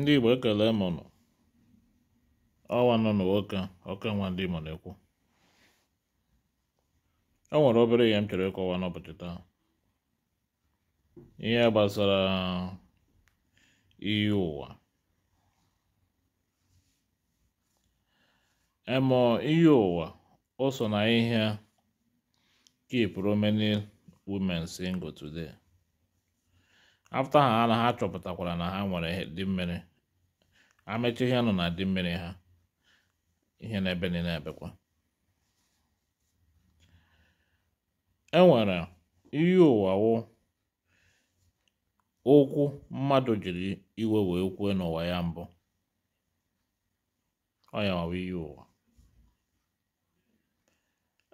ndị igbo ekele mụnụ ọnwa nọ n'ụka ọka nwa ndị igbo na-ekwu e nwere obere ihe m chọrọ ịkọwa n'ụbọchị taa ihe gbasara iyi ụwa emo iyi ụwa o so na ihe keep Romani women single today afta ha na ha chọpụtakwara na ha nwere dị mmiri amechi ihe nọ na dị mmiri ha ihe na-ebe niile ebekwa e nwere iyi ụwa okwu mmadụ jiri iwe wee kwue n'ụwa ya mbụ ọ ya iyi ụwa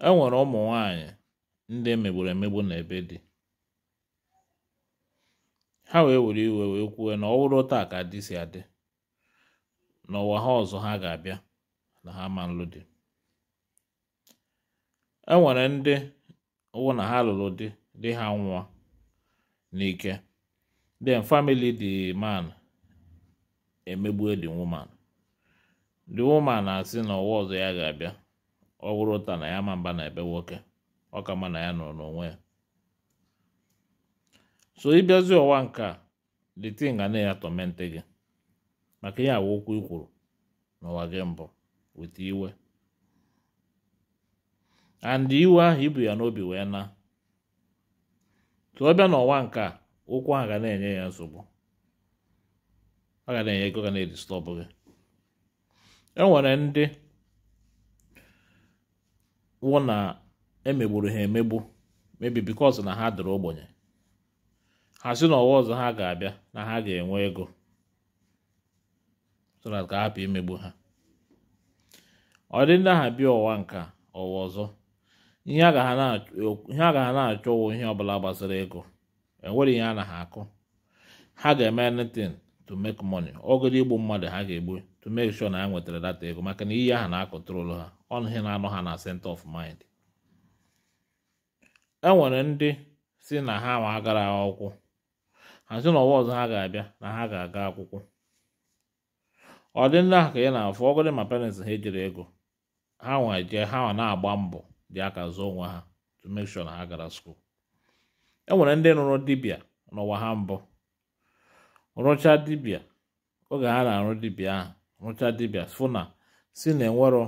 e nwere ụmụ nwanyị ndị emegburu emegbu na ebe dị ha wee were iwe wee na ọwụrụ ụta taa ka dị si adị n'ụwa ha ọzọ ha ga-abịa na ha ma nlụ dị e nwere ndị wụ na ha lụrụ di di ha nwa n'ike then famili the man emegbue the woman the woman na-asị na ụwa ọzọ ya ga-abịa ọ ụta na ya ma mba na ebe nwoke ọ ka ma na ya nọ n'onwe ya so ịbịazi ọwa nke a the thing ga na-ya tọmente gị maka ihe awa okwu ikwuru n'ụwa gị mbụ weta iwe and iwe ahụ ibu ya n'obi wee na tụọ bịa n'ọwa nke a ahụ ga na-enye ya nsogbu ọ ga na-enye ego ga na edistọbụ gị e nwere ndị wụ na emegburu ha emegbu mebi because na ha dịrị ogbenye ha si n'ọwa ọzọ ha ga-abịa na ha ga-enwe ego so na ka hapụ imegbu ha ọ dị ndị aha bịa ọwa nka ọwa ọzọ ihe a ga ha na-achọ ụwụ ihe ọbụla gbasara ego enwere ihe a na ha akụ ha ga-eme anything to make money ọgụdụ igbu mmadụ ha ga-egbu to make sure na ha nwetara data ego maka na iyi aha na-akọtụrụ ha ọnụ ihe na-anọ ha na center of mind enwere ndị si na ha ma agara akwụkwọ ha na ọwa ọzọ ha ga-abịa na ha ga-aga akwụkwọ ọ dị ndị ahụ ka ya na-afụ ọgọdị ma parents ha ejiri ego ha nwa jee ha nwa na-agba mbọ dị aka zụọ onwe ha to make sure na ha gara skuul e nwere ndị nụrụ dibịa n'ụwa ha mbụ rụchaa dibịa oge ha na-arụ dibịa ahụ rụchaa dibịa fụ na si na enwero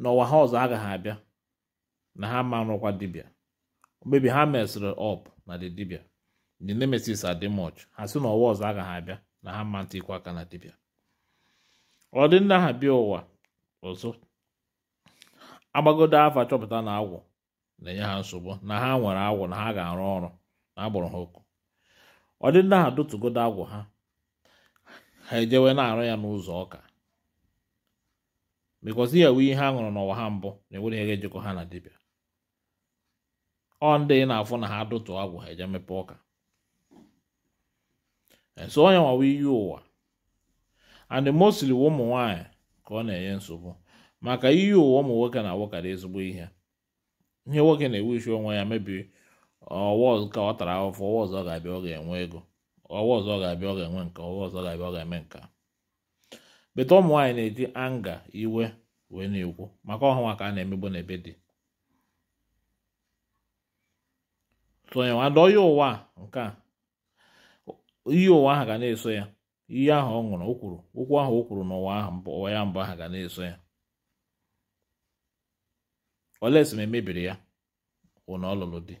n'ụwa ha ọzọ agaghị abịa na ha ma rụkwa dibịa mgbebi ha mesịrị ọp na dị dibịa ndị nemesis adịmọch ha si n'ụwa ọzọ agaghị abịa na ha mma ntị aka na dibịa ọ dị ndị ha bịa ụwa ọzọ agbagodo afa chọpụta na agwụ na-enye ha nsogbu na ha nwere agwụ na ha ga-arụ ọrụ na agbụrụ ha oku ọ dị ndị ha dotugodo agwụ ha ha ejewe na-arụ ya n'ụzọ ọka because ihe wee ihe a ṅụrụ n'ụwa ha mbụ na-enwere ihe ga-ejikọ ha na dibịa ọ ndị na-afụ na ha dụtụ agwụ ha eje mepe ọka nso ọ ya nwa w'iyi ụwa and mostly ụmụ nwanyị ka ọ na-enye nsogbu maka iyi ụwa ụmụ nwoke na-awụkarị ezigbo ihe ihe nwoke na isi onwe ya mebiri ọwa ka ọ tara afụfụ ọwa ọzọ ọ ga-abịa ọ ga-enwe ego ọwa ọzọ ọ ga-abịa ọ ga-enwe nka ọwa ọ ga-abịa ọ ga-eme nka beta ụmụ nwaanyị na-eji anga iwe wee na-ekwu maka ọhụwa ka a na-emegbu n'ebe dị sonye nwadọ ya ụwa nke a iyi ụwa ahụ ga na-eso ya iyi ahụ ọ ṅụrụ o okwu ahụ o kwuru n'ụwa ahụ ụwa ya mbụ ahụ ga na-eso ya olesi ma emebiri ya wụ na ọ lụrụ di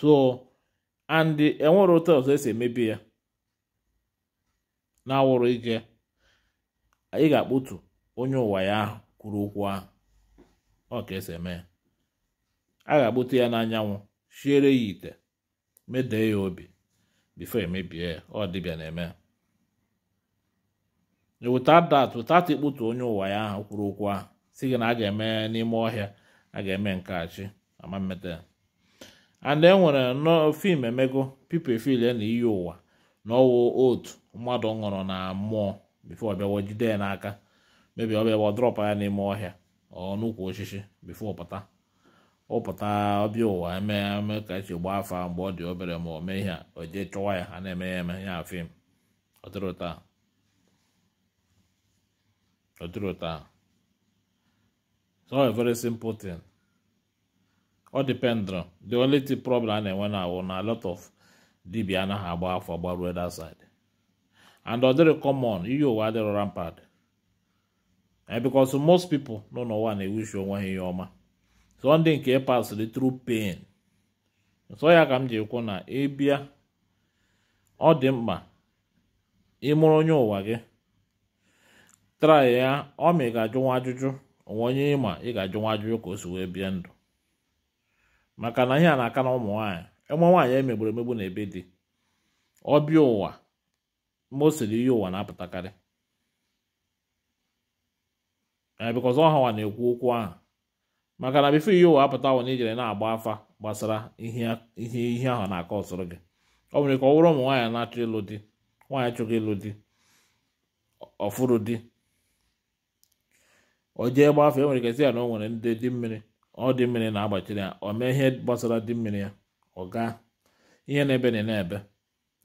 so and enwere ụtọ ọzọ esi emebi ya na-awụrụ ike anyị ga-akpụtu onye ụwa ya ahụ kwuru okwu ahụ ọ ka esi eme ya a ga-akpụtu ya n'anyanwụ siere ya ite medee ya obi before emebie ya ọ dịbịa na-eme without that without ikputu onye ụwa ya ahụ kwuru okwu ahụ si gị na a ga-eme n'ime ọhịa a ga-eme nke achị ama mmeta and enwere nnọọ fim emego people feel na iyi ụwa na ọwụ otu mmadụ ṅụrụ na mmụọ before ọbịawa jide ya n'aka mebi ọbịawa drọp ya n'ime ọhịa ọ n'ukwu osisi before ọ pụta ụpụta ọbịa ụwa eme eme ka esi gbaa afa mgbe ọ dị obere ma o mee ihe o jee chọwa ya ha na-eme ya eme ya afim ọtụrụta so a very simple thing ọ dependr the only thing problem a na-enwe na awụ na lot of dibia anaghị agba afọ gbaruo that side and ọ dịrị common iyi ụwa adịrọ rampad because most people nọ n'ụwa na-ewushi onwe ha ihe ọma sọnde nke pasịrị tru pain nsọ ya ka m ji kwụ na ịbịa ọ dị mkpa ịmụrụ onye ụwa gị trai ya ọ ma ị ga-ajụ nwa ajụjụ onwe onye ịma ị ga-ajụ nwa ajụjụ ka o si wee bie ndụ maka na ihe a na-aka na ụmụ nwaanyị ịmụ e nwaanyị emegburu emegbu na ebe dị ọbịa ụwa mgbe o siri ihe ụwa na-apụtakarị bikọz ọha na-ekwu okwu ahụ maka na bifo ihe ụwa apụta wụ na ijere na-agba afa gbasara ihe ihe ahụ na-akọ ọsọrọ gị ọ nwere ka ọ bụrụ ụmụ nwaanyị na-achọ ịlụ di nwaanyị chọghị ịlụ di ọfụrụ di o jee gbafe e ya na o nwere ndị dị mmiri ọ dị mmiri na-agbachiri ya o mee ihe gbasara dị mmiri ya ọ gaa ihe na-ebe na na-ebe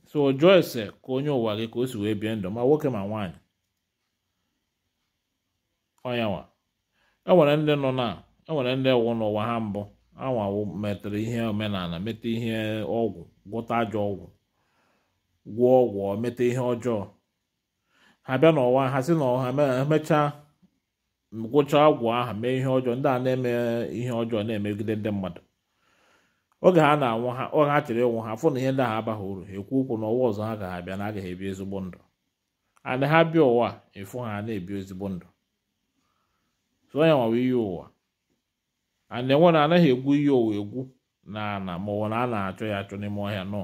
so o jụọ ese ka onye ụwa gị ka o si wee bie ndụ ma nwoke ma nwaanyị ọnyanwa e nwere ndị nọ na e nwere ndị wụ n'ụwa ha mbụ anwawo metere ihe omenala mete ihe ọgwụ gwọta ajọ ọgwụ gwụọ ọgwụ mete ihe ọjọọ ha bịa n'ụwa ha si na ọha emechaa gwụcha ọgwụ ahụ mee ihe ọjọọ ndị a na-eme ihe ọjọọ na-emegide ndị mmadụ oge ha na-anwụ ha oge ha chere ịnwụ ha fụ na ihe ndị ha abaghị uru ekwu okwu n'ụwa ọzọ ha ga abịa na agaghị ebi ezigbo ndụ ana ha bịa ụwa ịfụ ha na-ebi ezigbo ndụ so onye nwawa iyi ụwa na anaghị egwu ihe owu egwu na ana ma ọ na a na-achọ ya achọ n'ime ọhịa nọ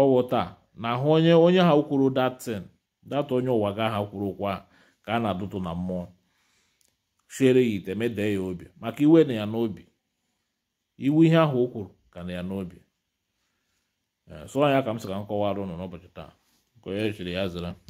ọwụ taa na ahụ onye onye ha kwuru datin data onye ụwa ga ha kwuru kwa ka a na-adụtụ na mmụọ chere ya ite mede ya obi maka iwe na ya n'obi iwu ihe ahụ o kwuru ka na ya n'obi eh, sọ ya ka m sị ka m kọwara ụnụ n'ụbọchị taa nke onye ya zara